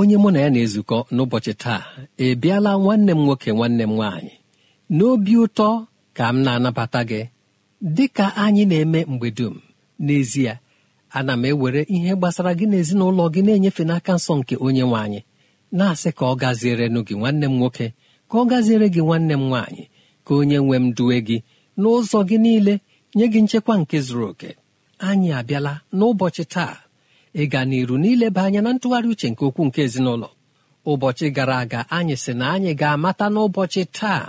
onye mụ na ya na-ezukọ n'ụbọchị taa ebiala nwanne m nwoke nwanne m nwaanyị n'obi ụtọ ka m na-anabata gị dị ka anyị na-eme mgbe dum n'ezie ana m ewere ihe gbasara gị n'ezinụlọ gị na-enyefe n'aka nsọ nke onye nwanyị na-asị ka ọ gaziere gị nwanne m nwoke ka ọ gaziere gị nwanne m nwaanyị ka onye nwe m duwe gị n'ụzọ gị niile nye gị nchekwa nke zuru oke anyị abịala n'ụbọchị taa ịga n'iru n'ileba anya na ntụgharị uche nke okwu nke ezinụlọ ụbọchị gara aga anyị sị na anyị ga-amata n'ụbọchị taa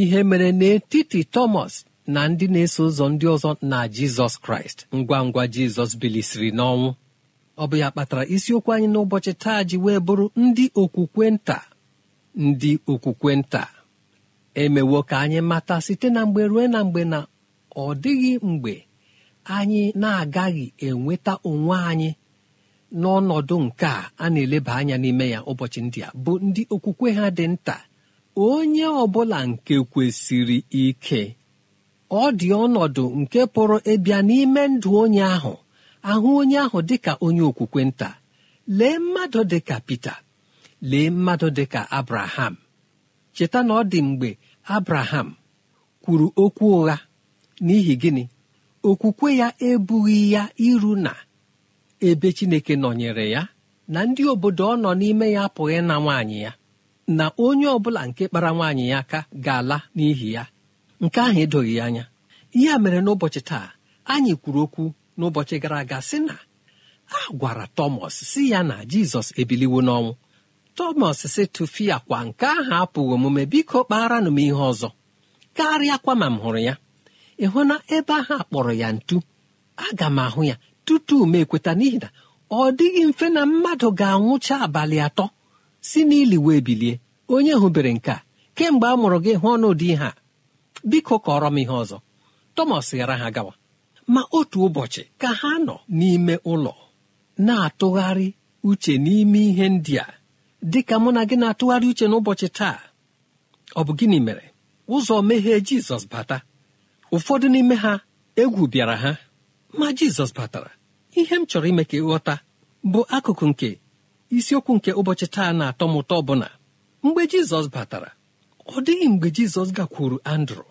ihe mere n'etiti Thomas na ndị na-eso ụzọ ndị ọzọ na Jizọs Kraịst ngwa ngwa Jizọs bilisiri n'ọnwụ ọ bụ ya kpatara isiokwu anyị n'ụbọchị taa ji wee bụrụ ndị okwukwe nta ndị okwukwe nta emewo ka anyị mata site na mgbe ruo na mgbe na ọ dịghị mgbe anyị na-agaghị enweta onwe anyị n'ọnọdụ nke a na-eleba anya n'ime ya ụbọchị ndị a bụ ndị okwukwe ha dị nta onye ọbụla nke kwesịrị ike ọ dị ọnọdụ nke pụrụ ịbịa n'ime ndụ onye ahụ ahụ onye ahụ dị ka onye okwukwe nta lee mmadụ dị ka Pita lee mmadụ dị ka Abraham cheta na ọ dị mgbe Abraham kwuru okwu ụgha n'ihi gịnị okwukwe ya ebughị ya iru na ebe chineke nọnyere ya na ndị obodo ọ nọ n'ime ya apụghị na nwaanyị ya na onye ọbụla nke kpara nwaanyị ya aka ga-ala n'ihi ya nke ahụ edoghị ya anya ihe mere n'ụbọchị taa anyị kwuru okwu n'ụbọchị gara aga sị na a gwara tọmọs si ya na jizọs ebiliwo n'ọnwụ tọmọs si tụfia kwa nke ahụ apụghị omume biko kpaara nụ m ihe ọzọ karịa kwa ma m hụrụ ya ị hụ na ebe ahụ akpọrọ ya ntu aga m ahụ ya tutu m ekweta n'ihi na ọ dịghị mfe na mmadụ ga-anwụcha abalị atọ si n'ili wee bilie onye hụbere nke a kemgbe a mụrụ gị hụ n'ụdị ihe a biko kọrọ m ihe ọzọ Thomas ghara ha gawa ma otu ụbọchị ka ha nọ n'ime ụlọ na-atụgharị uche n'ime ihe ndị a dị ka mụ na gị na-atụgharị uche n'ụbọchị taa ọ bụ gịnị mere ụzọ meghee Jizọs bata ụfọdụ n'ime ha egwu bịara ha ma Jizọs batara ihe m chọrọ ime ka ịghọta bụ akụkụ nke isiokwu nke ụbọchị taa na-atọ m ụtọ bụ mgbe jizọs batara ọ dịghị mgbe jizọs gakwuru andrụ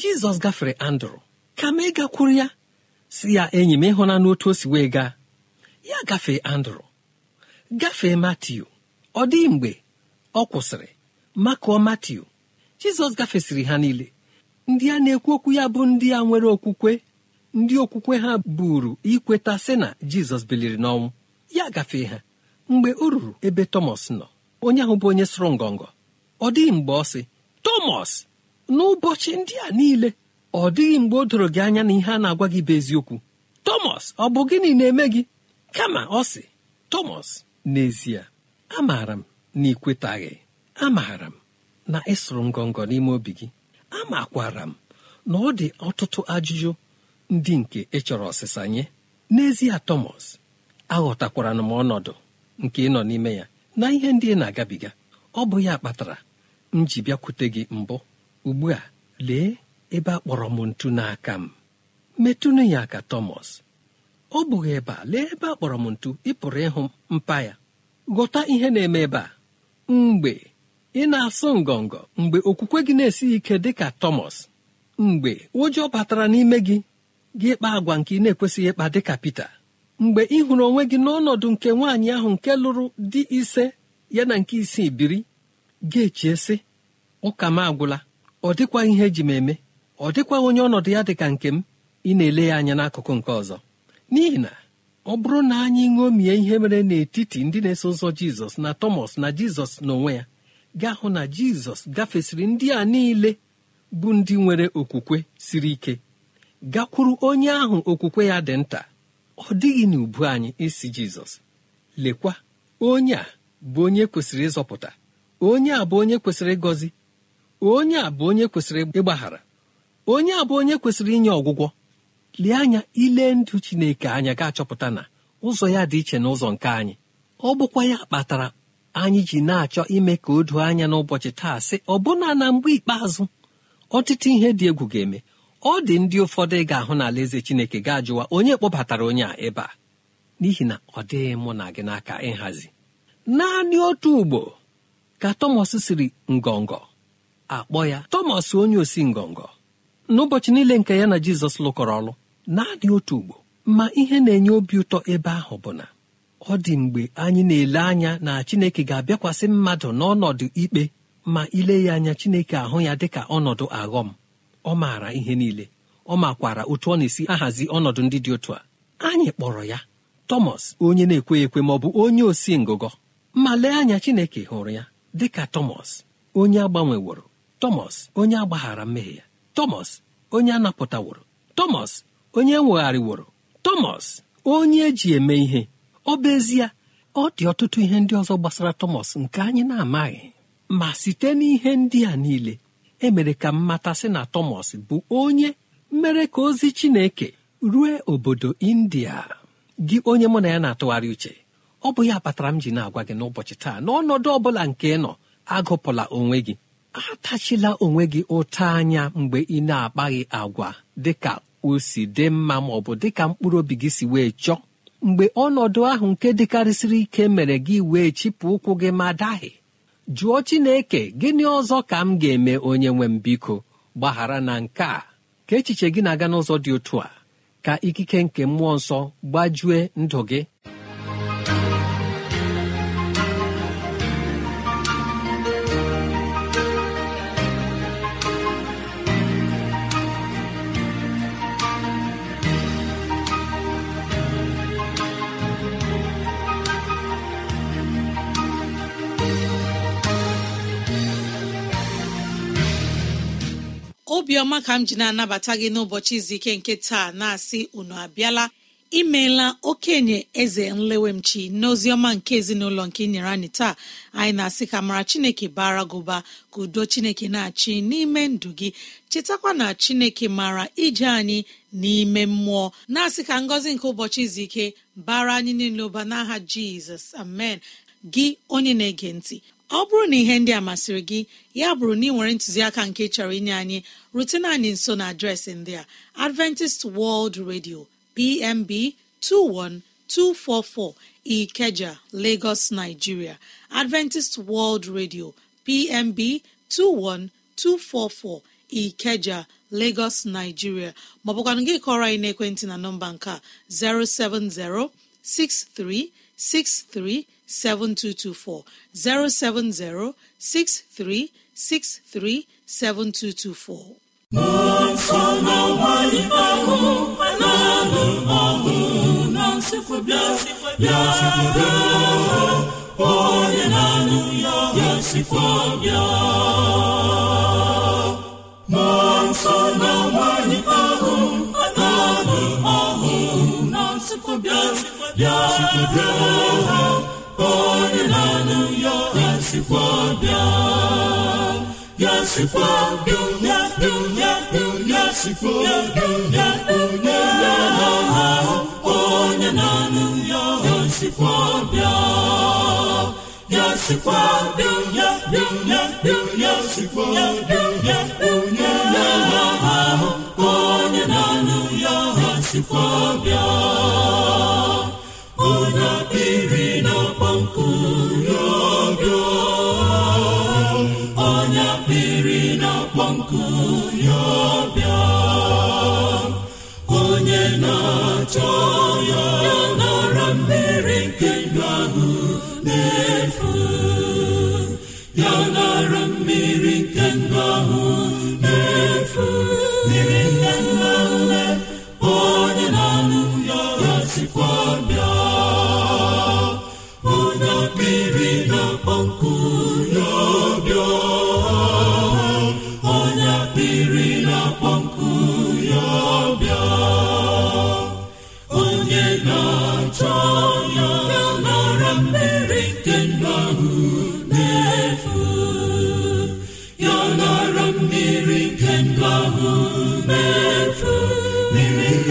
jizọs gafere andrụ kama ịgakwuru ya si ya enyi m n'otu otu o si wee gaa ya gafee andrụ gafee matiu ọ dịghị mgbe ọ kwụsịrị makụọ matiu jizọs gafesịrị ha niile ndị a na-ekwu okwu ya bụ ndị a nwere okwukwe ndị okwukwe ha buru ikweta sị na jizọs biliri n'ọnwụ ya gafee ha mgbe o ruru ebe tọmọs nọ onye ahụ bụ onye sụrụ ngọngọ ọ dịghị mgbe ọ sị tọmọs n'ụbọchị ndị a niile ọ dịghị mgbe o doro gị anya na ihe a na-agwa gị bụ eziokwu tọmọs ọ bụ gịnị na-eme gị kama ọ sị tọmọs n'ezie amaara m na ịkwetaghị amaara m na ịsụrụ ngọngọ n'ime obi gị amakwara m na ọ dị ọtụtụ ajụjụ ndị nke chọrọ ọsịsa nye n'ezie tọmọs aghọtakwara m ọnọdụ nke ịnọ n'ime ya na ihe ndị ị na-agabiga ọ bụ ya kpatara m ji bịakwute gị mbụ ugbu a lee ebe a kpọrọ m ntu n'aka m metụnụ ya aka tọmọs ọ bụghị ebe a lee ebe a kpọrọ m ntu ị pụrụ ịhụ mpa ya ghọta ihe na-eme ebe a mgbe ị na-asụ ngọngọ mgbe okwukwe gị na-esighị ike dị ka tọmọs mgbe ụjọ batara n'ime gị gị ịkpa agwa nke ị na-ekwesịghị ịkpa dịka ka Pita mgbe ị hụrụ onwe gị n'ọnọdụ nke nwaanyị ahụ nke lụrụ di ise ya na nke isii biri ga-echie sị ụka m agwụla ọ dịkwa ihe eji m eme ọ dịkwa onye ọnọdụ ya dịka nke m ị na-ele ya anya n'akụkụ nke ọzọ n'ihi na ọ bụrụ na anyị ṅomie ihe mere n'etiti ndị na-eso ụzọ Jizọs na Tọmọs na Jizọs n'onwe ya gaa hụ na Jizọs gafesịrị ndị a niile bụ ndị nwere okwukwe siri ike gakwuru onye ahụ okwukwe ya dị nta ọ dịghị n'ubu anyị isi jizọs lekwa onye a bụ onye kwesịrị ịzọpụta onye a bụ onye kwesịrị ịgọzi onye a bụ onye kwesịrị ịgbaghara onye a bụ onye kwesịrị inye ọgwụgwọ lee anya ile ndụ chineke anya ga-achọpụta na ụzọ ya dị iche na ụzọ nke anyị ọ bụkwa ya kpatara anyị ji na-achọ ime ka o doo anya n'ụbọchị taa sị ọbụna na mgbe ikpeazụ ọtụtụ ihe dị egwu ga-eme ọ dị ndị ụfọdụ ga-ahụ n'ala eze chineke ga-ajụwa onye kpọbatara onye a ebe a n'ihi na ọ dịghị mụ na gị n'aka ịhazi naanị otu ugbo ka tọmọs siri ngọngọ akpọ ya tọmọs onye osi ngọngọ n'ụbọchị niile nke ya na jizọs lụkọrọ ọrụ. naanị otu ugbo ma ihe na-enye obi ụtọ ebe ahụ bụ na ọ dị mgbe anyị na-ele anya na chineke ga-abịakwasị mmadụ n'ọnọdụ ikpe ma ile ya anya chineke ahụ ya dịka ọnọdụ aghọm ọ maara ihe niile ọ makwara otu ọ na-esi ahazi ọnọdụ ndị dị otu a anyị kpọrọ ya tọmọs onye na ekwe ekwe ma ọ bụ onye osi ngụgọ ma lee anya chineke hụrụ ya dị ka tọmọs onye agbanweworo tọmọs onye agbaghara mmehie ya tọmọs onye anapụtaworo tọmọs onye ewegharịworo tọmọs onye eji eme ihe ọ bụ ezie ọ dị ọtụtụ ihe ndị ọzọ gbasara tọmọs nke anyị na-amaghị ma site n'ihe ndị a niile emere ka m matasị na Thomas bụ onye mere ka ozi Chineke rue obodo India gị onye mụ na ya na-atụgharị uche ọ bụ ya kpatara m ji na-agwa gị n'ụbọchị taa n'ọnọdụ ọ bụla nke nọ agụpụla onwe gị atachila onwe gị ụta anya mgbe ị na-akpaghị agwa dịka o si dị mma ma ọ bụ dịka mkpụrụ obi gị si wee chọọ mgbe ọnọdụ ahụ nke dịkarịsịrị ike mere gị wee chịpụ ụkwụ gị ma dahie jụọ chineke gịnị ọzọ ka m ga-eme onye nwe m biko gbaghara na nke a ka echiche gị na-aga n'ụzọ dị otu a ka ikike nke mmụọ nsọ gbajue ndụ gị obiọma ka m ji na-anabata gị n'ụbọchị izu ike nke taa na-asị unu abịala imeela okenye eze nlewemchi n'oziọma nke ezinụlọ nke inyere anyị taa anyị na-asị ka mara chineke bara gụba ka udo chineke na-achị n'ime ndụ gị chetakwa na chineke mara ije anyị n'ime mmụọ na-asị ka ngọzi nke ụbọchị izu ike bara anyị niile ụba n'aha jizọs amen gị onye na-ege ntị ọ bụrụ na ihe ndị a masịrị gị ya bụrụ na ị nwere ntụziaka nke chọrọ inye anyị rutena anyị nso na adreesị ndị a adventist world radio pmb 21244 ikeja lagos nigeria adventist world radio pmb 21244 ikeja lagos nigeria maọbụkwanụ gị kọrọ anyị ekwentị na nọmba nke a 070 6363 7224 070 6363 7224. onye na-anụ ya ga-esikwa bịa mmụọ nsọ na nwanyị ahụ na ahụ na-asịkwa bịa bịa bịa onye na-anụ ya asikwa ya sikwa bịa ya bịa ya ya sikwa onye na ya ya sikwa onye na ya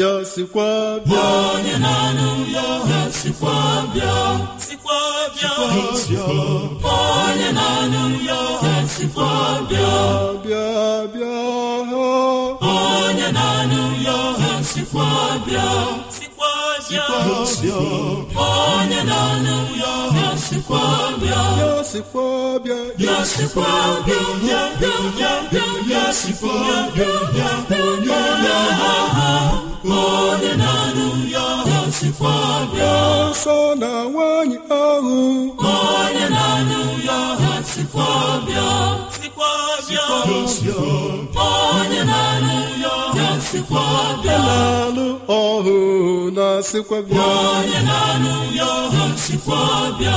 ya sikwa bịa onye na-anụ ya ha sikwa bịa sikwa bịa onye na-anụ ya ha sikwa bịa bịa bịa ha onye na-anụ ya ha sikwa bịa sikwa bịa onye na-anụ ya ha sikwa bịa ya sikwa bịa ya sikwa bịa ya bịa bịa ya sikwa bịa ya ya ha ha onye na-anụ ya sikwa bịa nsọ na nwaanyị ahụ onye na-anụ ya sikwa bịa sikwa bịa onye na-anụ ya sikwa bịa na alụ ọhụ na sikwa bịa onye na-anụ ya sikwa bịa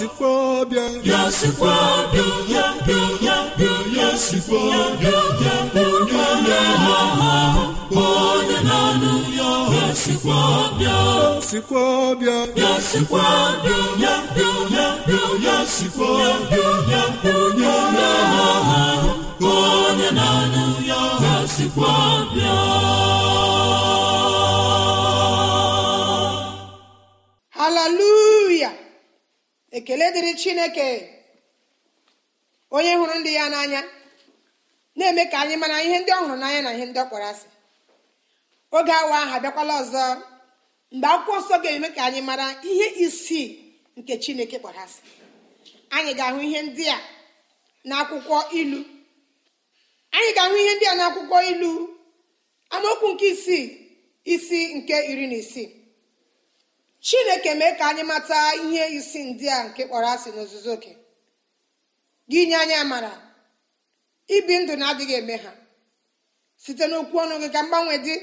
ya sikwa bịa ya bịa ya ya sikwa ya ya ya ya sikwa hallelujah ekele dịrị chineke onye hụrụ ndị ya n'anya na-eme ka anyị mara ihe ndị ọ hụrụ n'anya na ihe ndị ọ kpọrọ asị oge awa aha abịakwala ọzọ mgbe akwụkwọ nsọ ga-eme ka anyị mara ihe isii nke chineke kpọrọ asị anyị ga-ahụ ihe ndị a n'akwụkwọ ilu anyị ga-ahụ ihe ndị a n'akwụkwọ ilu amaokwu nke isii isi nke iri na isii chineke mee ka anyị mata ihe isi ndị a nke kpọrọ asị n'ozuzu oke gị nye anya mara ibi ndụ na-adịghị eme ha site n'okwu ọnụ gị ka mgbanwe dị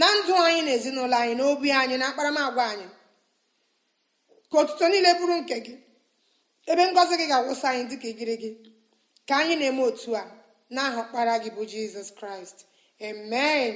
na ndụ anyị na ezinụlọ anyị na obi anyị na akparamagwa anyị ka otuto niile bụrụ nke gị ebe ngọzi gị ga-agwụsị anyị dịka igiri gị ka anyị na-eme otu a na ọkpara gị bụ jizọs kraịst amen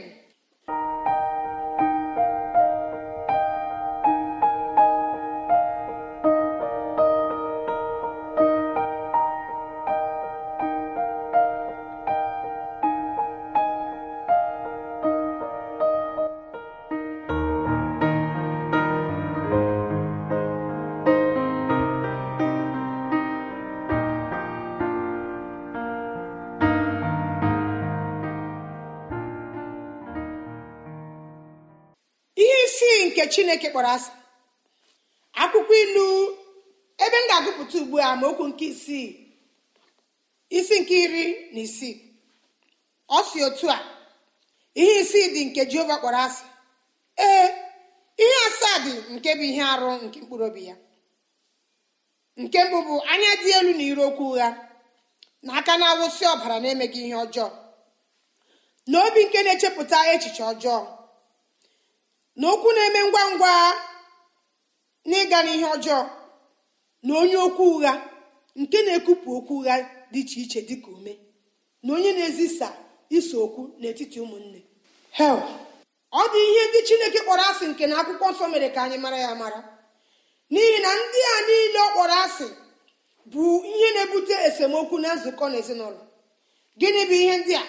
nke chineke kpọrọ asị akwụkwọ ilu ebe m ga-agụpụta ugbu a ma okwu nke isii isi nke iri na isii ọ si otu a ihe isii dị nke jehova kpọrọ asị ee ihe asaa dị nke bụ ihe arụ nke mkpụrụ obi ya nke mbụ bụ anya dị elu na iri okwu ụgha na aka na-awụsị ọbara na-emeghị ihe ọjọọ na obi nke na-echepụta echiche ọjọọ na okwu na-eme ngwa ngwa n'ịga n'ihe ọjọọ na onye okwu ụgha nke na-ekupụ okwu ụgha dị iche iche dịka ume na onye na-ezisa iso okwu n'etiti ụmụnne hel ọ dị ihe ndị chineke kpọrọ asị nke na akwụkwọ nsọ mere ka anyị mara ya mara n'ihi na ndị a niile ọ kpọrọ asị bụ ihe na-ebute esemokwu na nzukọ na ezinụlọ gịnị bụ ihe ndị a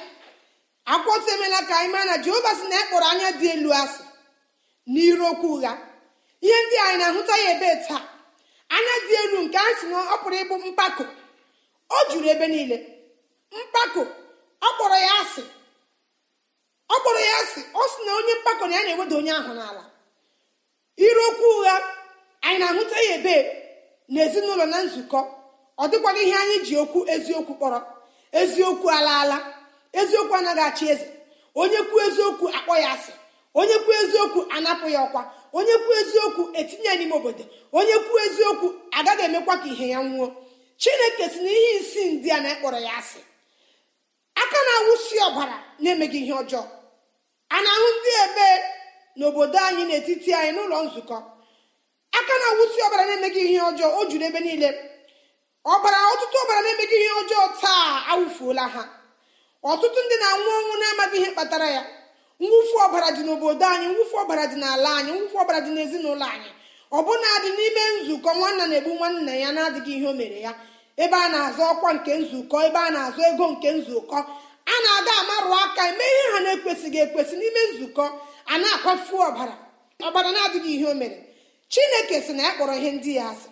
akwụkwọ nsọ emela ka anyị mara na jehova sị na ya e kpọrọ anya dị elu asị n'irokwu ụgha ihe ndị anyị na-ahụta ya ebe taa anya dị elu nke a si na ọ pụrụ ịbụ mpako o juru ebe niile mpako ọkpọrọ ya asị ọ kpọrọ ya asị ọ sị na onye mpako na ya na-eweda onye ahụ n'ala okwu ụgha anyị na-ahụta ya ebe n'ezinụlọ na nzukọ ọ dịkwala ihe anyị ji okwu eziokwu kpọrọ eziokwu ala eziokwu anaghị achị eze onye kwuo eziokwu akpọ ya asị onye kwuo eziokwu anapụ ya ọkwa onye kwuo eziokwu etinye n'ime obodo onye kwuo eziokwu agaghị emekwa ka ihe ya nwuo chineke si na ihe isi ndị a na-ekpọrọ ya asị aka na-awụsi ọbara na-emeghị ihe ọjọọ a na-ahụ ndị ebe n'obodo anyị n'etiti anyị n'ụlọ nzukọ aka na-awụsi ọbara na-emeghị ihe ọjọọ o juru ebe niile ọbara ọtụtụ ọbara na-emeghị ihe ọjọọ taa awụfuola ha ọtụtụ ndị na-anwụ ọnwụ na-amaghị ihe kpatara ya mwụfu ọbara dị n'obodo anyị mwụfu ọbara dị n'ala anyị mwụfu ọbara dị n'ezinụlọ anyị ọbụna dị n'ime nzukọ nwanna na-egbu nwanna ya na-adịghị ihe o mere ya ebe a na-azụ ọkwa nke nzukọ ebe a na-azụ ego nke nzukọ a na-aga amarụ aka eme ihe ha na-ekwesịghị ekwesị n'ime nzukọ a na-akwafu ọbara ọbara na-adịghị ihe o mere chineke sị na ya kpọrọ ihe ndị ya asị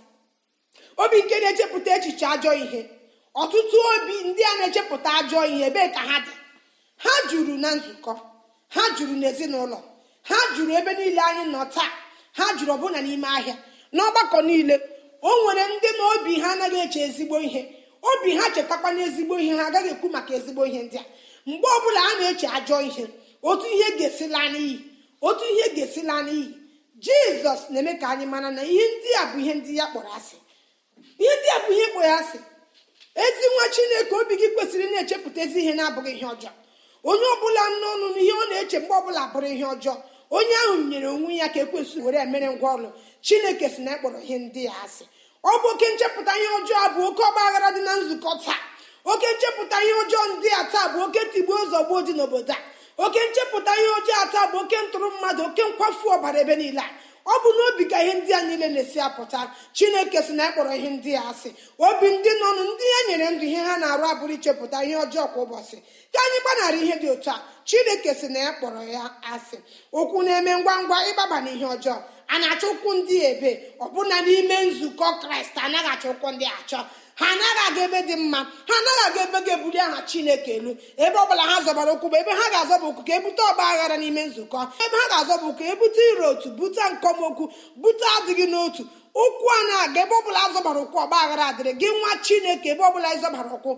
obi nke na-echepụta echiche ajọ ihe ọtụtụ obi ndị a na-echepụta ajọ ihe ebee ka ha dị ha juru na nzukọ ha jụrụ n'ezinụlọ ha jụrụ ebe niile anyị nọ taa ha jụrụ ọbụna n'ime ahịa n'ọgbakọ niile o nwere ndị na obi ha anaghị eche ezigbo ihe obi ha chetakwa n'ezigbo ihe ha agaghị ekwu maka ezigbo ihe ndị a mgbe ọbụla a na-eche ajọ ihe otu ihe ga-esila n'iyi otu ihe ga-esila n'iyi jizọs na-eme ka anyị mara na ihe ndị a bụ ihe ndị ya kpọrọ asị ihe ndị a bụ ihe kpọrọ asị ezi nwa chineke obi gị kwesịrị na-echepụta ezi ihe na-abụghị ihe ọjọọ onye ọbụla n'ọnụ n'ihe ọ na-eche mgbe ọbụla bụrụ ihe ọjọọ onye ahụ nyere onwe ya ka ekwesịrị were emere ngwa ọrụ chineke si na ịkpọrọ e ihe ndị ya asị ọ bụ oke nchepụta ihe ọjọọ bụ oke ọgba aghara dị na nzukọ taa oke nchepụta ihe ọjọọ ndị a taa bụ oke tigbuo zọgbuo dị n'obodo a oke nchepụta ihe ọjọọ taa bụ oke ntụrụ mmadụ oke nkwafu ọbara ebe niile a ọ bụ n'obi ka ihe ndị a niile na-esi apụta chineke si na akpọrọ ihe ndị a asị obi ndị nọnụ ndị ya e nyere ndụ ihe ha na-arụ abụrụ ichepụta ihe ọjọọ kwa ụbọchị ka anyị gbanara ihe dị otu a chineke si na ya kpọrọ ya asị okwu na-eme ngwa ngwa ịgbaba na ihe ọjọọ a na-achọ ụkwụ ndị ebe ọbụna n'ime nzukọ kraịst anaghị achọ ụkwụ ndị achọ ha anaghị aga ebe dị mma ha anaghị aga ebe ga-ebuli aha chineke elu ebe ọbụla ha zọbara ụkwụ bụ ebe ha ga-azọba ụkwụ ka ebute ọgba aghara n'ime nzukọ ebe ha ga-azọba ụkwụ ebute iro otu bute nkọmokwu bute adịghị n'otu ụkwụ a na-aga ebe ọbụla azọbara ụkwụ ọgba aghara adịrị gị nwa chineke ebe ọbụla ịzọbara ụkwụ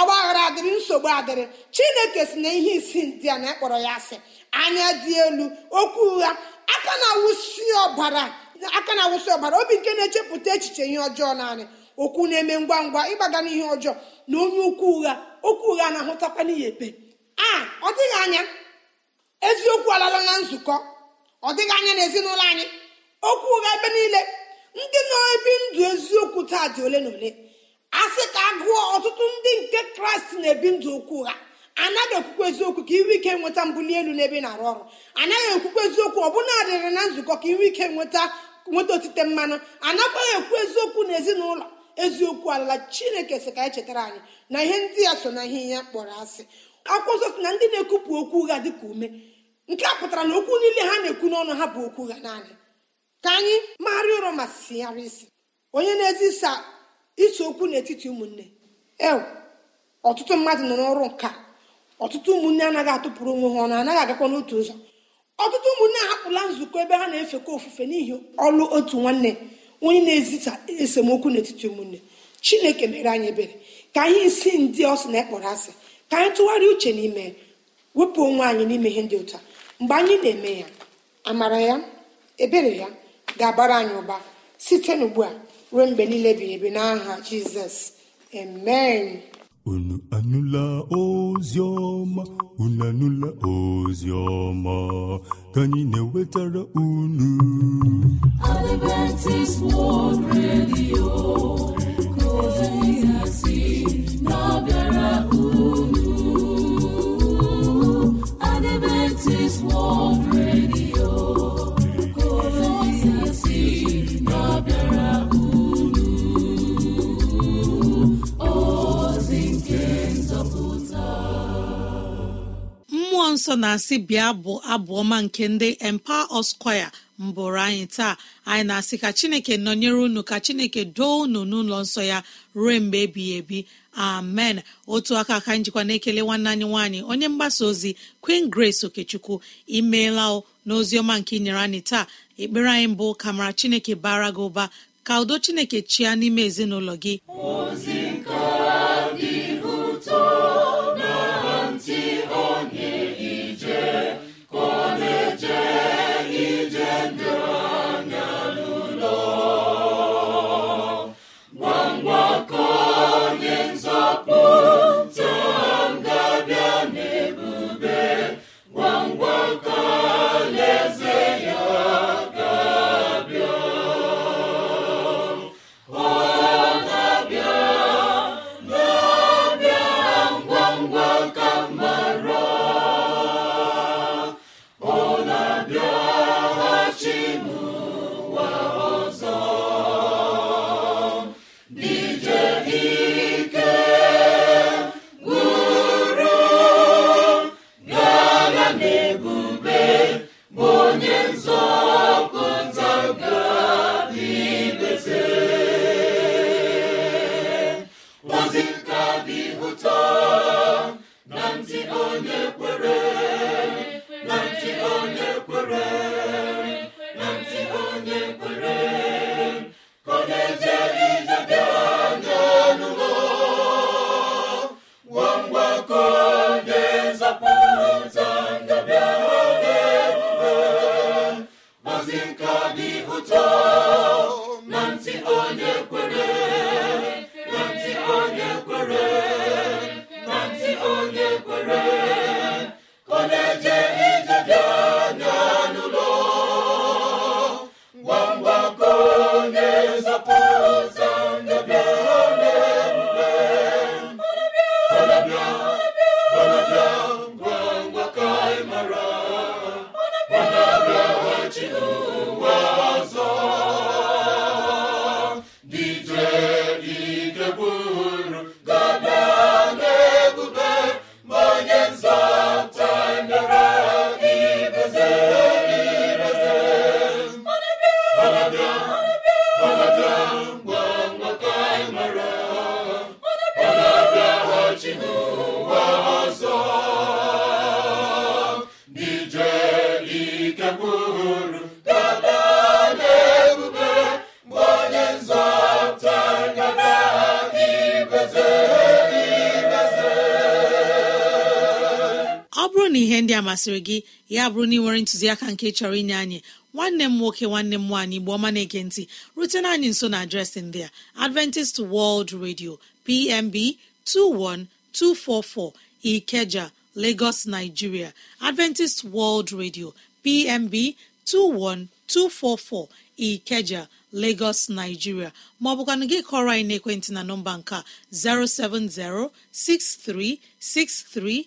ọgba aghara adịrị nsogbu adịrị chineke si na ihe isi ndị a na-akpọrọ ya asị anya dị elu okwu ụgha aka na ọbara aka na ọbara obi nke na-echepụta echiche ihe ọjọọ naanị okwu na-eme ngwa ngwa ịgbaga n'ihe ọjọọ na onye ukwu ụgha okwu ụgha na-ahụtakwa n'ihe ekpe a ọ dịghị anya eziokwu alala na nzukọ ọ dịghị anya na ezinụlọ anyị okwu ụgha ebe niile ndị nọ ebi ndụ eziokwu taa dị ole na ole a sị ka agụọ ọtụtụ ndị nke kraịst na-ebi ndụ okwu ụgha anaghị okwukwe eziokwu ka inwe ike nweta mbuli elu n'ebe na-arụ ọrụ anaghị okwukwe eziokwu ọbụna adịrị na nzukọ ka inwe ike nweta nweta otite mmanụ anakwaghị ekwu eziokwu na eziokwu ala chineke sị ka anyị chetara anyị na ihe ndị ya so na ihe ya kpọrọ asị akwụkwọ nsọ si na ndị na-ekwupụ okwu ụgha dị ka ume nke a pụtara na okwu niile ha na-ekwu n'ọnụ ha bụ okwu ụgha naanị ka anyị magharịa ụrọ ma sigharịa isi onye na-ezisa iso okwu n'etiti ụmụnne ewe ọtụtụ mmadụ nọ n'ọrụ nka ọtụtụ ụmụnne anaghị atụpụrụ onwe ha ọnụ anaghị agakwa n'otu ụzọ ọtụtụ ụmụnne ahapụla nzukọ ebe ha na-efekọ ofufe n'ihi ọlụ otu nwanne onye na ezita esemokwu n'etiti ụmụnne chineke mere anyị ebere ka anyị isi ndị ọsị na ekpọrọ asị ka anyị tụgharịa uche n'ime wepụ onwe anyị n'ime ihe ndị ụta mgbe anyị na-eme ya amara ya ebere ya ga-abara anyị ụba site n'ugbu a ruo mgbe niile bi ebi n'aha jizọs amen unu anụla ozi ọma unu anụla ozi ọma ka anyị na-ewetara unu Adventist World Radio ka ozi si na-abịara unu Adventist World ụlọ nsọ na-asị bịa bụ abụ ọma nke ndị empa us mbụrụ anyị taa anyị na-asị ka chineke nọnyere unu ka chineke doo unu n'ụlọ nsọ ya ruo mgbe ebighị ebi amen otu aka ka njikwa na-ekele nwanne anyị nwaanyị onye mgbasa ozi queen grace okechukwu imeela n'ozi ọma nke inyere anyị taa ekpere anyị mbụ kamara mara chineke bara gị ụba ka udo chineke chịa n'ime ezinụlọ gị ọ bụrụ na ihe ndị a masịrị gị ya bụrụ na ị nwere ntụziaka nke chọrọ inye anyị nwanne m nwoke nwanne m nwaanyị igbo ọma na ntị rutena anyị nso na adreesị ndị a Adventist World Radio PMB 21244 Ikeja Lagos Nigeria Adventist World Radio PMB 21244 Ikeja Lagos Nigeria maọbụkwanụ gị kọrọ anyị na nọmba nke 6363.